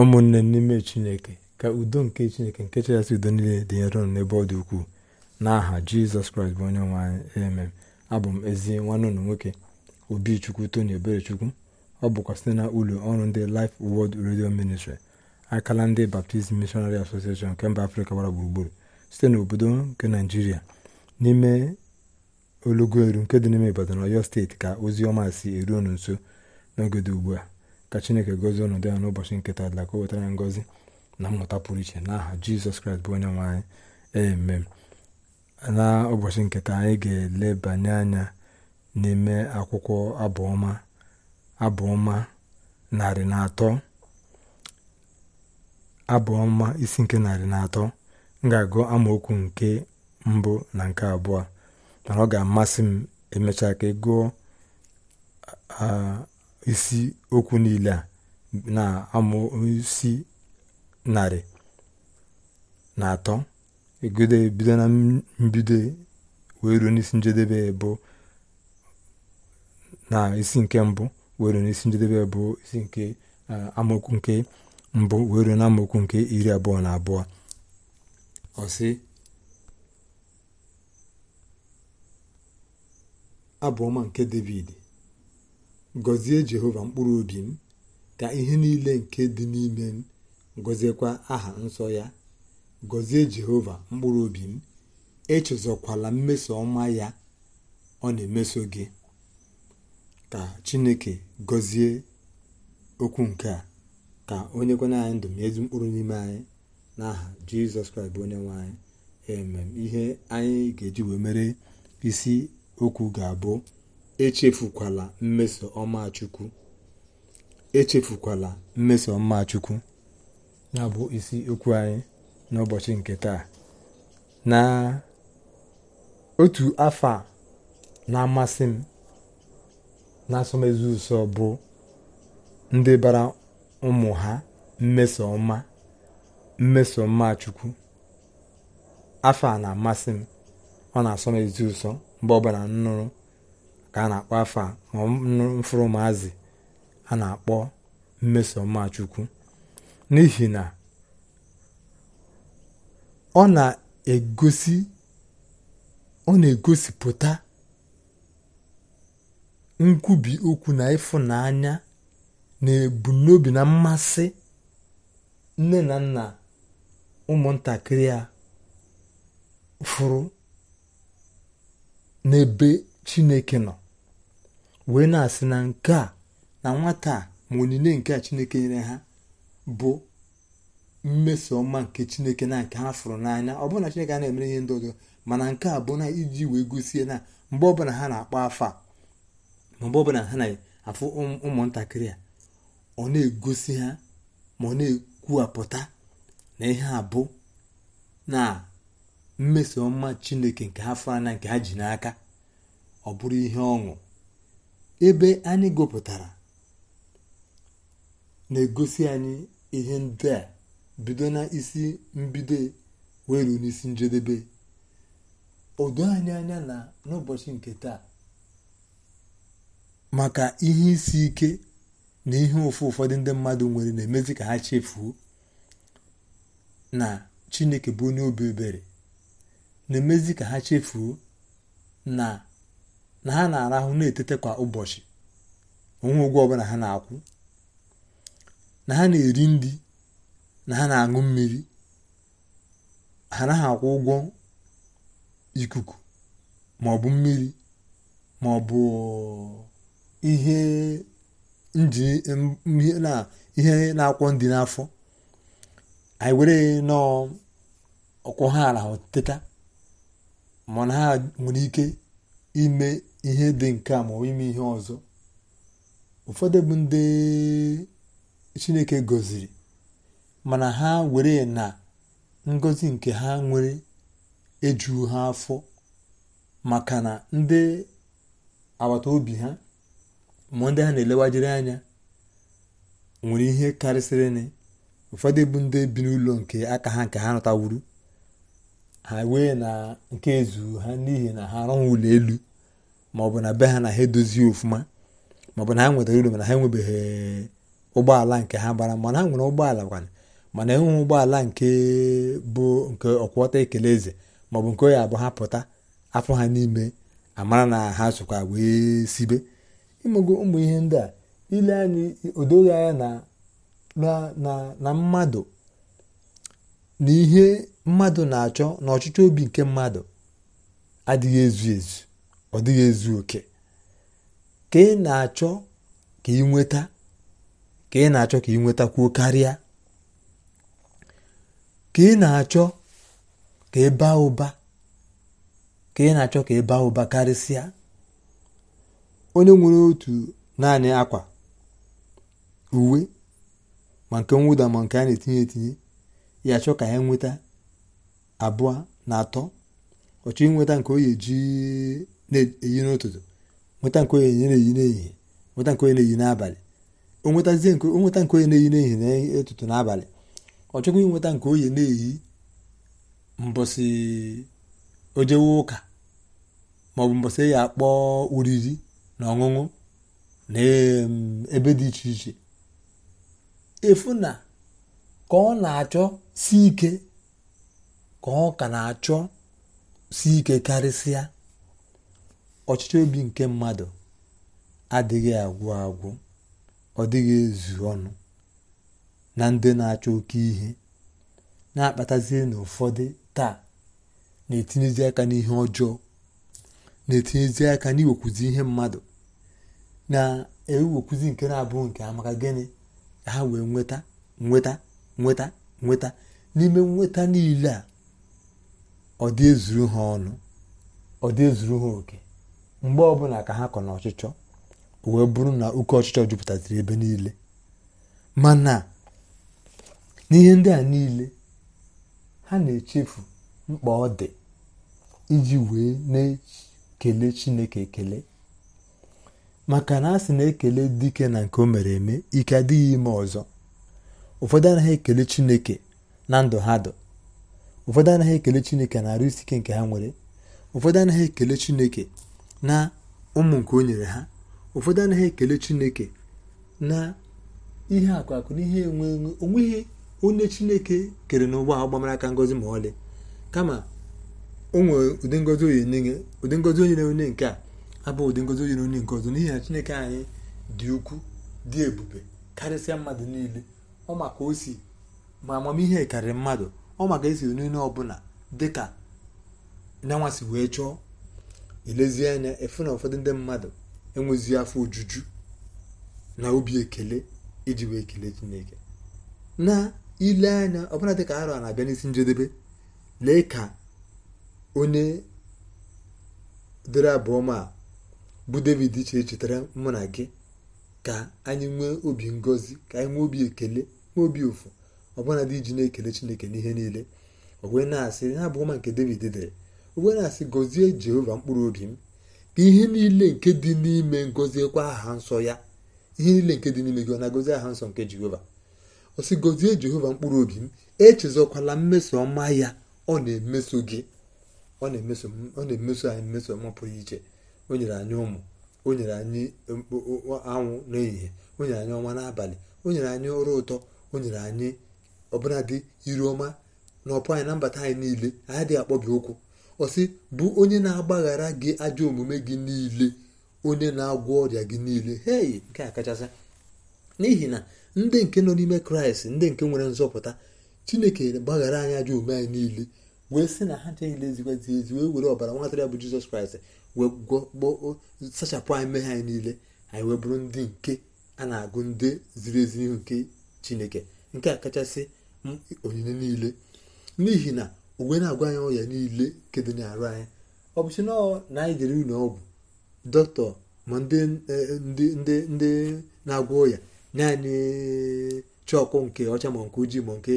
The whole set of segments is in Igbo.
ụmụnne n'ime chineke ka udo nke chineke nke chịkasị udo niile dị ụnụ n'ebe ọ dị ukwuu n'aha jizọs kraịst bụ onye nwe anyị abụ m ezi nwanne ụlọ nwoke obichukwu tony eberechukwu ọ bụkwa site na ụlọ ọrụ ndị Life Word redio ministri akala ndị Baptist Missionary Association nke mba afrịka gbara gburugburu site n'obodo nke naijiria n'ime olugoeru nke dị n'ime Ibadan Ọyọ steeti ka ozi ọma si eru nso n'oge dị ugbu a ka chineke gozie ọnọdụ ha n'ụbọchị nketa dịla ka o wetara ya ngọzi na mmụta pụrụ iche n'aha jizọs kraịst bụ onye nwe anyị emem na ụbọchị nketa anyị ga-elebanye anya n'ime akwụkwọ abụọma abụọma narị na atọ abụọma isi nke narị na atọ m ga-agụ amaokwu nke mbụ na nke abụọ mana ọ ga-amasị m emechaa ka ịgụọ isi okwu niile a na isi narị na atọ egodo e bido na mbido e, wee ruo n'isi njedebe e bụ na isi nke mbụ wee ruo n'isi njedebe bụ isi nke amaokwu nke mbụ wee ruo na nke iri abụọ na abụọ ọsị abụọ nke david gọzie jehova mkpụrụ obi m ka ihe niile nke dị n'ime m gọziekwa aha nsọ ya gọzie jehova mkpụrụ obi m echezọkwala mmeso ọma ya ọ na-emeso gị ka chineke gọzie okwu nke a ka onye kwena anyị ndụ ma ezi mkpụrụ n'ime anyị n'aha jizọs kraịst onye nwe anyị emem ihe anyị ga-eji wee mere isi okwu ga-abụ echefukwala mmeso ọma chukwu echefukwala mmeso ọma chukwu na-abụ isi okwu anyị n'ụbọchị nke taa na otu afọ na-amasị m na ụsọ bụ ndị bara ụmụ ha mmeso ọma mmeso ọma chukwu afọ a na-amasị m ọ na-asọ ezi ụsọ mgbe ọbụla nnụrụ ka a na-akpọ afọ a mfụrụ maazị a na-akpọ mmesoma chukwu n'ihi na ọ na-egosi ọ na-egosipụta nkwubi okwu na ịfụnanya na ebumnobi na mmasị nne na nna ụmụntakịrị a fụrụ n'ebe chineke nọ wee na-asị na nke a na nwata a ma onyinye nke a chineke nyere ha bụ mmeso ọma nke chineke na nke ha fụrụ n'anya ọ bụrụ na chineke a na-emere ihe ndị ọzọ mana nke a bụ na iji wee gosie na mgbe ọbụla ha na-akpọ afọ a ma mgbe ọbụla ha na-afụ ụmụntakịrị a ọ na-egosi ha ma ọ na-ekwuwapụta na ihe a bụ na mmeso ọma chineke nke ha fụrụ anya nke ha ji n'aka ọ bụrụ ihe ọṅụ ebe anyị gụpụtara na-egosi anyị ihe ndị a bido na isi mbido wee ruo n'isi njedebe odo anyị anya na n'ụbọchị nke taa maka ihe isi ike na ihe ụfụ ụfọdụ ndị mmadụ nwere na-emezi ka ha chefuo na Chineke bụ onye obi ebere na-emezi ka ha chefuo na na ha na-arahụ na-etete kwa ụbọchị onwe ụgwọ ọbụla ha na-akwụ na ha na-eri nri na ha na-aṅụ mmiri ha naghị akwụ ụgwọ ikuku ma ọ bụ mmiri ma ọ bụ ihe na-akwọ ndị n'afọ anyị were nọọ ọkwọ ha arahụ teta na ha nwere ike ime ihe dị nke a ma ime ihe ọzọ ụfọdụ bụ ndị chineke gọziri mana ha were na ngọzi nke ha nwere ejughị ha afọ maka na ndị agbata obi ha ma ndị ha na-elewajiri anya nwere ihe karịsịrị ụfọdụ bụ ndị bi n'ụlọ nke aka ha nke ha nọtawuru ha wee na nke ezu ha n'ihi na ha arụnwụ ụlọ elu maọbụ na be ha na ha edozi ofụma maọbụ na ha nwetara uru mana ha enwebeghị ụgbọala nke ha bara mana ha nwere ụgbọala kwana mana enweghị ụgbọala nke bụ nke ọkwọta ekele eze maọbụ nke onye abụọ ha pụta afọ ha n'ime amara na ha sokwa wee sibe imego ụmụ ihe ndị a ile anyị odoghị anya na mmadụ na mmadụ na-achọ na ọchịchọ obi nke mmadụ adịghị ezu ezu ọ dịghị ezu oke ka ị na-achọ ka ị nweta ka ị na-achọ ka ị nwetakwuo karịa ka ị na-achọ ka ị baa ụba ka ị na-achọ ka ị baa ụba karịsịa onye nwere otu naanị akwa uwe ma nke nwụda ma nke a na-etinye etinye ya achọ ka ya nweta abụọ na atọ ọ chọọ inweta nke oyi eji na-eyi n'ụtụtụ nweta nke oyi na-eyi n'ehihie nweta nke oyi na-eyi n'abalị onweta nke oyi na-eyi n'ehihie na n'abalị ọ chọkwa inweta nke oyi na-eyi mbọsị ojewe ụka maọbụ mbọsị e ya akpọ oriri na ọṅụṅụ na ebe dị iche iche efu na ka ọ na-achọ si ike ka na-achọ si ike karịsịa ọchịchọ obi nke mmadụ adịghị agwụ agwụ ọ dịghị ezu ọnụ na ndị na-achọ oke ihe na-akpatazie na ụfọdụ taa na-etinyezi aka n'ihe ọjọọ na-etinyezi aka n'iwekwuzi ihe mmadụ na-ewekwuzi nke na-abụghị nke amaka gịnị ha wee nweta nweta nweta nweta n'ime nweta niile a ọ dị ezuru ha ọnụ ọ dị ezuru ha oke mgbe ọbụla ka ha kọ n'ọchịchọ wee bụrụ na oke ọchịchọ jupụtaziri ebe niile mana n'ihe ndị a niile ha na-echefu mkpa ọ dị iji wee na-ekele chineke ekele maka na a sị na ekele dike na nke o mere eme ike adịghị ime ọzọ ụfọdụ anaghị ekele chineke na ndụ ha dụ ụfọdụ anaghị ekele chineke na arụ isi ike nke ha nwere ụfọdụ anaghị ekele chineke na ụmụ nke o nyere ha ụfọdụ anaghị ekele chineke na ihe akụ akụ na ihe enwe onweghị onye chineke kere n'ụgbọ ahụ gbamara aka ngozi ma ọlị kama onwere ụdị ngozi onye nye ụdị ngozi onye nke a abụ ụdị ngozi onyere onye nke ọzọ n'ihi na chineke anyị dị ukwuu dị ebube karịsịa mmadụ niile ọ maka osi ma amamihe karịrị mmadụ ọ maka esi n'ile ọbụla dịka nyanwasị wee chọọ elezie anya efu na ụfọdụ ndị mmadụ enwezi afọ ojuju na obi ekele iji wee kelee chineke na ile anya ọbụla dịka arọ na-abịa n'isi njedebe lee ka onye dịrị abụọ ma bụ david iche chetara mụ na gị ka anyị nwee obi ngozi ka anyị nwee obi ekele obi ụfụ ọbụna dị iji na-ekele chineke n'ihe niile owe na-asị ha bụ ọma nke david dere owee na-asị gozie jehova mkpụrụ obi m ka ihe niile nke dị n'ime ngọziekwa aha nsọ ya ihe niile nke dị n'ime gị na aha nsọ nke jehova ọ gozie jehova mkpụrụ obi m echezọkwala mmeso ọma ya ọ na-emeso gị ọ na-emeso anyị mmeso ọma pụrụ iche o nyere anyị ụmụ o nyere anyị anwụ n'ehihie o nyere anyị ọnwa n'abalị o nyere anyị ụra ụtọ o nyere anyị ọbụladị iru ọma na ọpụ anyị na mbata anyị niile anyị adịghị akpọbi okwu ọsị bụ onye na-agbaghara gị ajọ omume gị niile onye na-agwọ ọrịa gị niile hei nke a kachasị n'ihi na ndị nke nọ n'ime kraịst ndị nke nwere nzọpụta chineke gbaghara anyị ajọ omume anyị niile wee sị na ha niile ezikwazi ezi wee were ọbara nwatara bụ jizọs kraịst wee gwọọ sachapụ anyị mmehie anyị niile anyị wee bụrụ ndị nke a na-agụ ndị ziri ezi n'ihu nke chineke nke a kachasị hmm, onyinye niile n'ihi na uwe na-agwa anyị ọrịa niile nke dị n'arụ anyị ọ bụchi na anyị jere ụlọ ọgwụ dọkịta ma ndị e, na-agwọ ọrịa naanị chọkụ nke ọcha ma nke ojii ma nke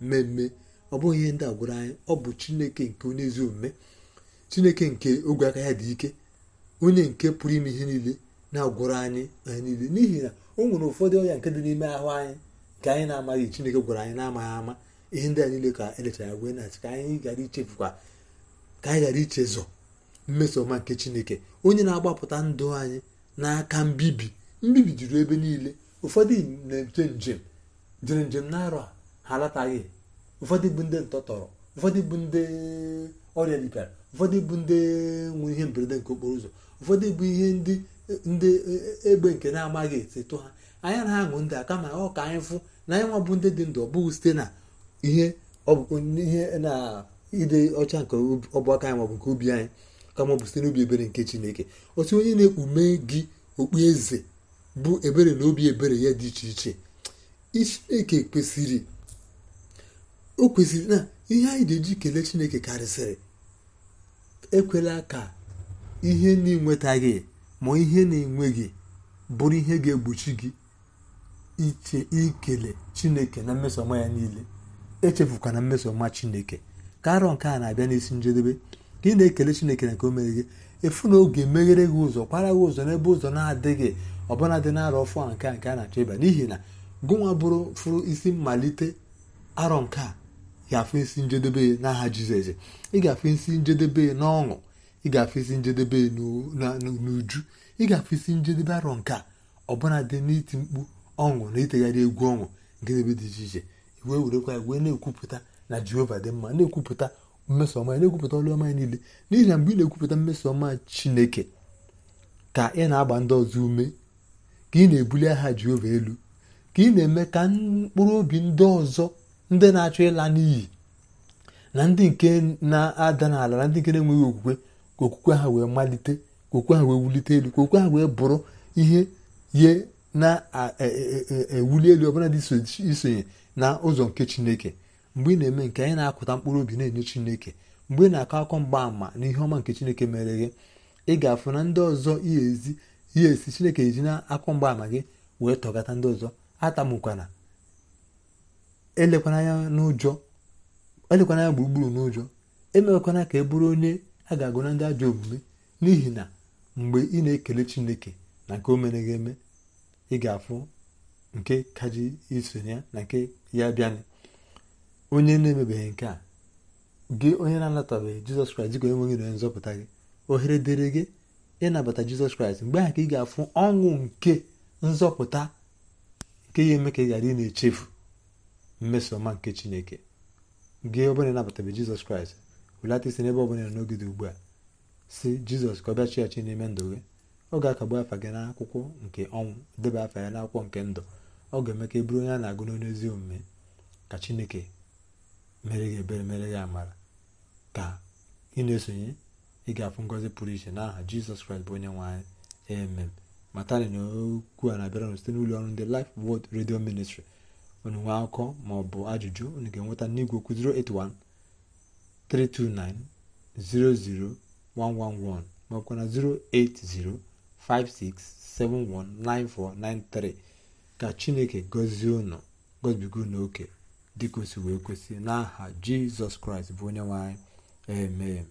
mmemme ọ bụghị ihe ndị agwụrụ anyị ọ bụ chineke nke onye ezi omume chineke nke ogwe aka ya dị ike onye nke pụrụ ime ihe niile na agwụrụ anyị anyị niile n'ihi na o nwere ụfọdụ ọrịa nke dị n'ime ahụ anyị nke anyị na-amaghị chineke gwara anyị na-amaghị ama ihe ndị a niile ka elechara gwe na ka anyị ghara ichefukwa ka anyị ghara ichezọ mmeso ọma nke chineke onye na-agbapụta ndụ anyị n'aka mbibi mbibi juru ebe niile ụfọdụ na-eje njem jere njem na-arọ ha alataghị ụfọdụ bụ ndị ntọtọrọ ụfọdụ bụ ndị ọrịa ripịara ụfọdụ bụ ndị nwere ihe mberede nke okporo ụzọ ụfọdụ bụ ihe ndị egbe nke na-amaghị etetụ ha anyị na-aṅụ ndị a kama ọ ka anyị fụ na anyị nwa bụ ndị dị ndụ ọ bụghị site na ihe ihe na ide ọcha nke ọbụaka anyị maọbụ nke obi anyị kama ọ bụ site n'obi ebere nke chineke otu onye na-ekpume gị okpu eze bụ ebere na obi ebere ya dị iche iche chineke kwesịrị o kwesịrị na ihe anyị ga-eji kelee chineke karịsịrị ekwela ka ihe na-enwetaghị ma ihe na-enweghị bụrụ ihe ga-egbochi gị iche ikele chineke na mmesoma ya niile echefukwana mmesoma chineke ka arọ nke a na-abịa n'isi njedebe ka ị na-ekele chineke na nke o mere gị efu na oge meghere gị ụzọ kwara gị ụzọ n'ebe ụzọ na-adịghị ọbụla dị n'arọ arọ fụa nke a nke a na-achọ ịba n'ihi na gụnwa bụrụ fụrụ isi mmalite arọ nke a ga-afụ isi njedebe n'aha jizọs ị ga-afụ isi njedebe n'ọṅụ ị ga-afụ isi njedebe n'uju ị ga-afụ isi njedebe arọ nke a ọbụla dị n'iti mkpu ọṅụ na itegharị egwu ọṅụ nke ebe dị iche iche wee werekwa ya wee na-ekwupụta na jehova dị mma na-ekwupụta mmeso ya na-ekwupụta ọlụ ọma niile n'ihi na mgbe ị na-ekwupụta mmeso ọma chineke ka ị na-agba ndị ọzọ ume ka ị na-ebuli aha jehova elu ka ị na-eme ka mkpụrụ obi ndị ọzọ ndị na-achọ ịla n'iyi na ndị nke na-ada n'ala na ndị nke na-enweghị okwukwe ka okwukwe ha wee malite ka okwukwe ha wee wulite elu ka okwukwe ha wee bụrụ ihe ye na-ewuli e, e, e, elu ọbụla dị isonye na ụzọ nke chineke mgbe ị na-eme nke anyị na-akụta mkpụrụ obi na-enye chineke mgbe ị na-akọ akọ mgbaàmà na ihe ọma nke chineke mere gị ị ga-afụ na ndị ọzọ ihe esi chineke eji na akọ mgbaàmà gị wee tọgata ndị ọzọ atamụkwana elekwana anya n'ụjọ elekwana gburugburu n'ụjọ emewekwana ka e bụrụ onye a ga-agụ na ndị ajọ omume n'ihi na mgbe ị na-ekele chineke na nke o mere gị eme ị ga-afụ nke kaji isonye na nke ya bịanị onye na-emebeghị nke a gị onye na-anatabeghị jizọs kraịst dịka onye nwe gị na nzọpụta gị ohere dịrị gị ịnabata jizọs kraịst mgbe ahụ ka ị ga-afụ ọṅụ nke nzọpụta nke ya eme ka ị ghara ị na-echefu mmeso ọma nke chineke gị ọbụla ịnabatabe jizọs kraịst wulata isi n'ebe ọbụla n'oge dị ugbu a si jizọs ka ọ bịa chi ya chi n'ime ndụ gị ọ ga-akagbu afa gị n'akwụkwọ nke ọnwụ debe afa ya n'akwụkwọ nke ndụ ọ ga-eme ka e bụrụ onye a na-agụ n'onye ezi omume ka chineke mere gị ebere mere gị amara ka ị na-esonye ị ga-afụ ngọzi pụrụ iche n'aha jizọs kraịst bụ onye nwe anyị emem matani na okwu a na-abịara n site n'ụlọ ọrụ ndị Life Word redio Ministry unu nwee akụkọ ma ọ bụ ajụjụ unu ga-enweta n'igwe okwu 081 329 00111 ma ọ na 080 56719493 ka chineke gọzie unu gọzibiga unu oke dịka o si wee kwesị n'aha jizọs kraịst bụ onye nwanyị anyị amen